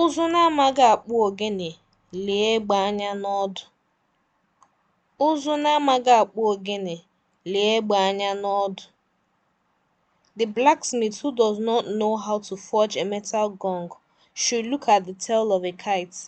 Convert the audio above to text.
Ụzụ na-amaghị akpụ ogene, lee egbe anya na lee egbe anya n'ọdụ. The blacksmith who does not know how to forge a metal gong should look at the tail of a kite.